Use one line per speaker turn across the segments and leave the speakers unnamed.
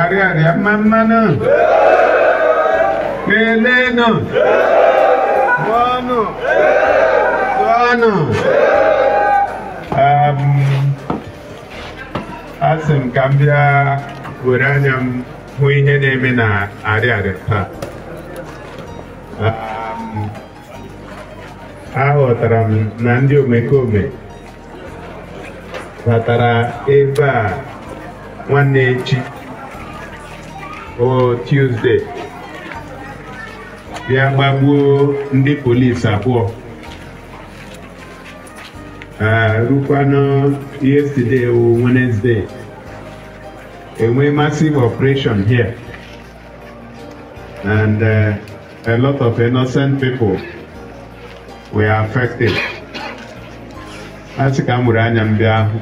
Arịarịa mma mmanụ kelenụ ọnụ ọnụ um, asị m ka m bịa were anya m hụ ihe na-eme na arịarịa taa um, aghọtara m na ndị omekome batara ebe a nwanne echi o tuzde bịa gbagbuo ndị polisi abụọ rukwanụ yesterday o Wednesday enwe massive operation here and uh, a lot of innocent people were affected. Asị ka m were anya m bịa ahụ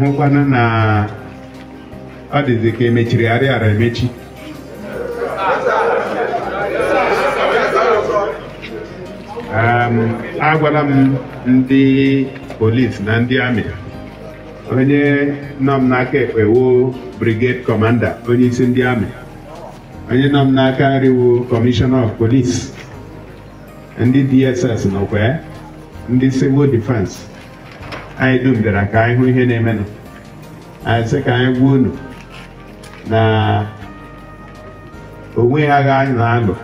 hụkwana na ọ dịzị ka emechiri arịara emechi agwara m ndị polis na ndị amị onye nọ m n'aka ekpe wo brigade commander onye isi ndị amị onye nọ m n'aka nriwu commissioner of police ndị dss nọkwa ndị civil defense anyị dum bịara ka anyị hụ ihe na-emenụ anyị sị ka anyị gwa unu na onweghị agha anyị na-alụ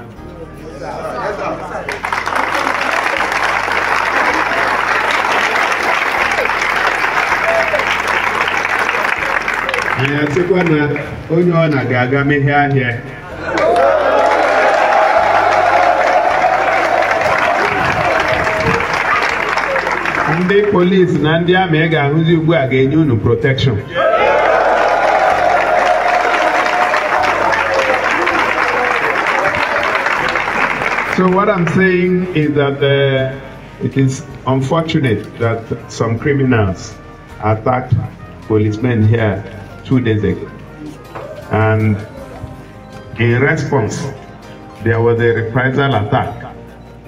anyị asịkwa na onye ọ na ga-aga mehie ahịa ndị na ndi amị ị ga-ahụzi ugbu a ga-enye unu So what I'm saying is that uh, it is unfortunate that some criminals attacked policemen here two days ago. And in response, there was a reprisal attack.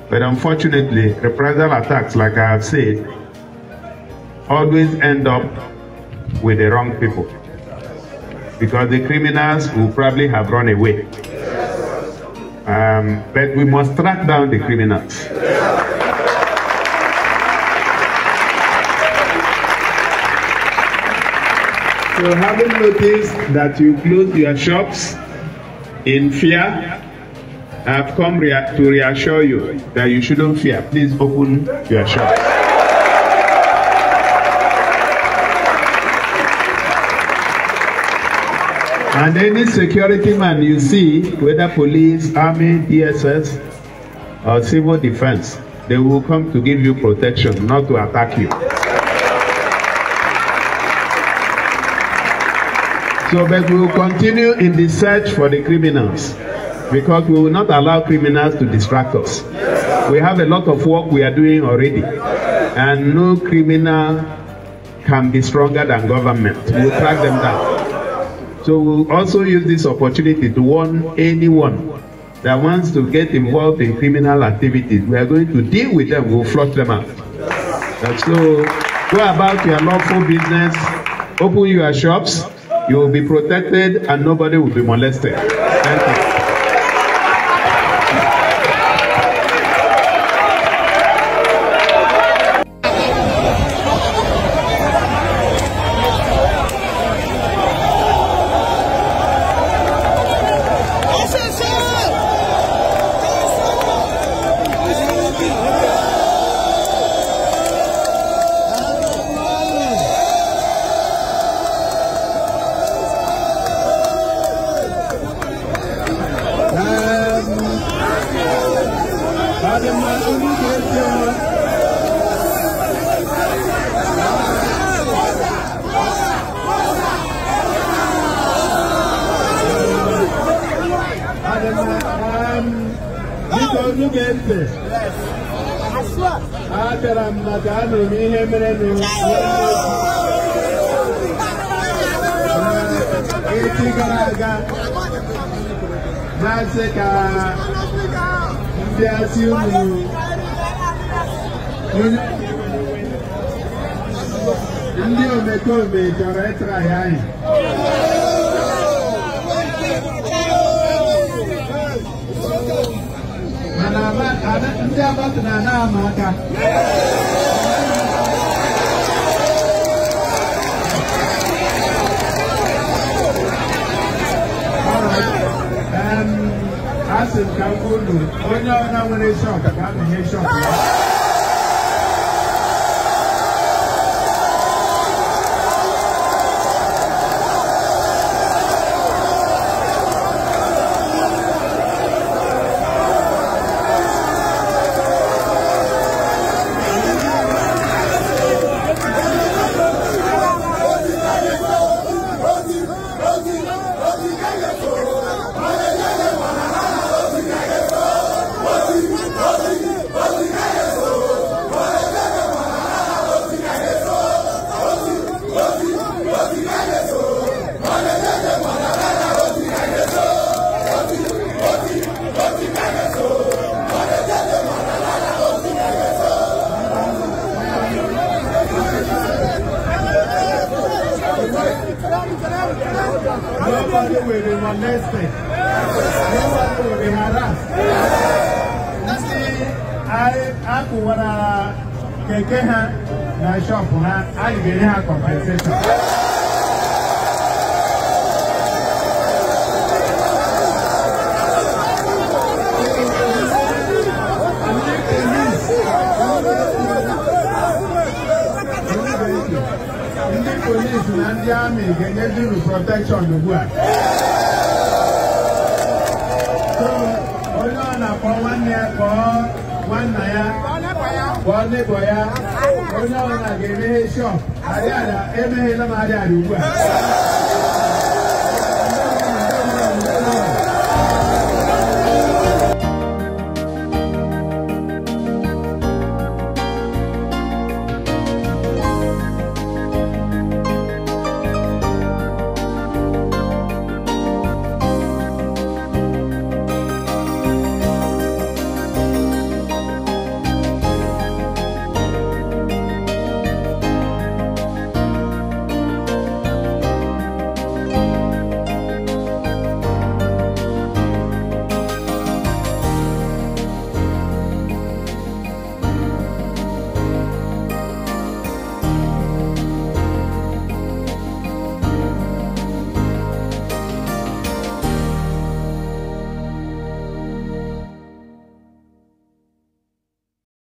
But unfortunately, reprisal attacks, like I have said, always end up with the wrong people. Because the criminals will probably have run away. Um, but we must track down the criminals. So having noticed that you closed your shops in fear, I've come rea to reassure you that you shouldn't fear. Please open your shop. And any security man you see, whether police, army, DSS, or civil defense, they will come to give you protection, not to attack you. So, but we will continue in the search for the criminals because we will not allow criminals to distract us. We have a lot of work we are doing already, and no criminal can be stronger than government. We will track them down. So we'll also use this opportunity to warn anyone that wants to get involved in criminal activities. We are going to deal with them. We'll flush them out. And so go about your lawful business, open your shops, you will be protected, and nobody will be molested. Thank you. biko nge ntị abịara m maka anụrụ m ihe mere echi gara aga na-asị ka ndị asị unu ndị omekome chọrọ ịtara ya anyị Sabat na-ana ama aka asị m ka m onye ọbụla nwere shọk ka a na-enye shọk a kụwara keke ha na shọpụ ha anyị ga-enye ha kọmpenseshọn ndị polisi na ndị amị ga-enye dịru protekshọn ugbu a nwanna ya gwa nebọ ya onye ọbụla ga-emeghe shọp adịala emeghela m adịala ugbu a